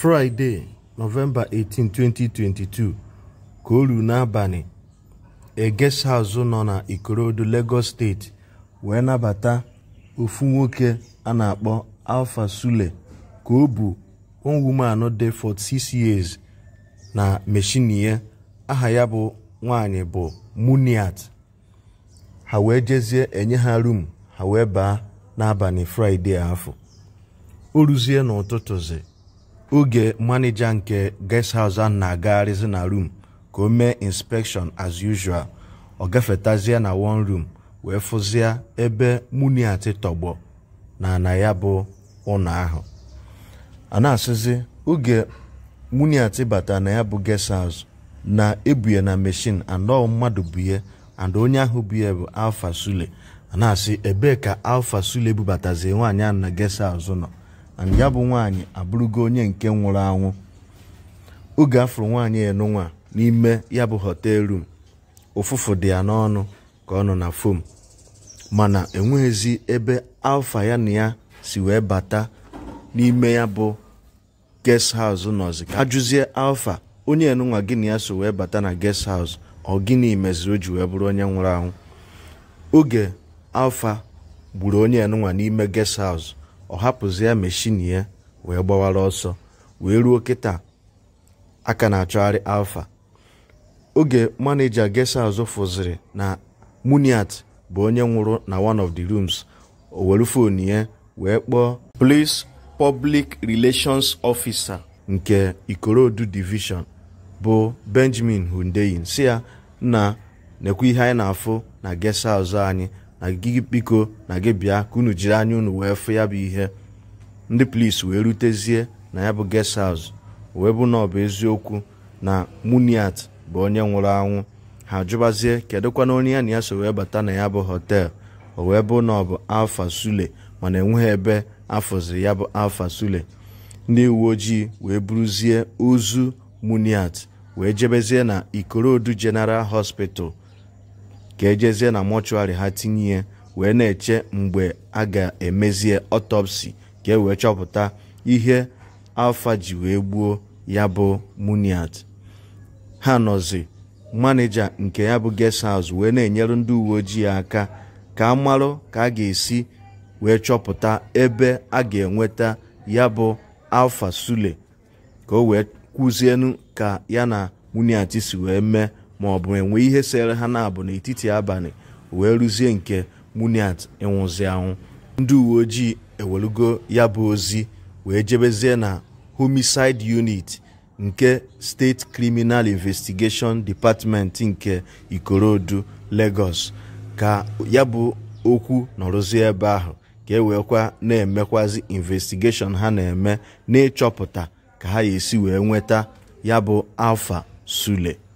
Friday, nọvemba 18 2022 ka o ruo n'abalị egesa azụ nọ na ikorodu lagos steeti wee nabata ofu nwoke a na-akpọ alfa sule ka o bu one anọ dị 46 years na meshinie aha ya bụ nwanyị bụ muniat ha wee jezie enye ha rum ha wee baa n'abalị fraịde afọ o ruzie n'ụtụtụzi oge manija nke ges haus a na-agagharịzi na rum ka o mee inspekshọn as usual ọ gafetazie na one room wee fụzie ebe muniat tọgbọ na na ya bụ ụnọ ahụ a na-asịzi oge muniat bata na ya bụ guest na ebuye na mechin anọ mmadụ buye and onye ahụ buye bụ alfa sule a na-asị ebee ka alfa sule bubatazie nwaanyị ahụ na guest house nọ and ya bụ nwaanyị abụrụgo onye nke nwụrụ anwụ oge afọrọ nwaanyị enunwa n'ime ya bụ hotel room ụfụfụ dị ya n'ọnụ ka ọ nọ na fom mana enweghịzi ebe alfa ya na ya si wee bata n'ime ya bụ guest house nọzi ka ajụzie alfa onye enunwa gị na ya so wee bata na guest house ọ gịnị meziri o ji wee bụrụ onye nwụrụ anwụ oge alfa gburu onye enunwa n'ime guest ọ hapụzi ya meshin ya wee gbawara ọsọ wee ruo kịta aka na-achọgharị alfa oge maneja gesa azụ fụziri na muniat bụ onye nwụrụ na one of the rooms o were fon ya wee kpọọ police public relations ofisa nke ikorodu divishọn bụ benjamin hundeyin si ya na nekwa ihe anyị na-afụ na gesa anyị na gị biko na gị bịa ka unu jiri anya unu wee fụ ya bụ ihe ndị polis wee rutezie na ya bụ guest house wee bụ na ọ bụ eziokwu na muniat bụ onye nwụrụ anwụ ha jụbazie kedụkwana onye ya na ya so wee bata na ya bụ hotel o wee bụ na ọ bụ alfa sule mana enweghị ebe afọzi ya bụ alfa sule ndị uwe ojii wee buruzie ozu muniat wee jebezie na ikorodu general hospital ka ejezie na mọchụarị ha tinye ya wee na-eche mgbe a ga-emezie ọtọpsi ka e wee chọpụta ihe alfa ji wee gbuo ya bụ muniat ha nọzi maneja nke ya bụ guest house wee na-enyere ndị uwe ojii aka ka a marụ ka a ga-esi wee chọpụta ebe a ga-enweta ya bụ alfa sule ka o wee kwuzienu ka ya na muniat si wee mee ma ọ bụ enwe ihe sere ha na-abụ n'etiti abalị wee rụzie nke muniat ịnwụzi anwụ ndị uwe ojii ewelugo ya bụ ozi wee jebezie na homicide unit nke steeti criminal investigation department nke ikorodu lagos ka ya bụ okwu nọrụzie ebe ahụ ka e na-emekwazi investigeshon ha na-eme n'ịchọpụta ka ha ga-esi wee nweta ya bụ alfa sule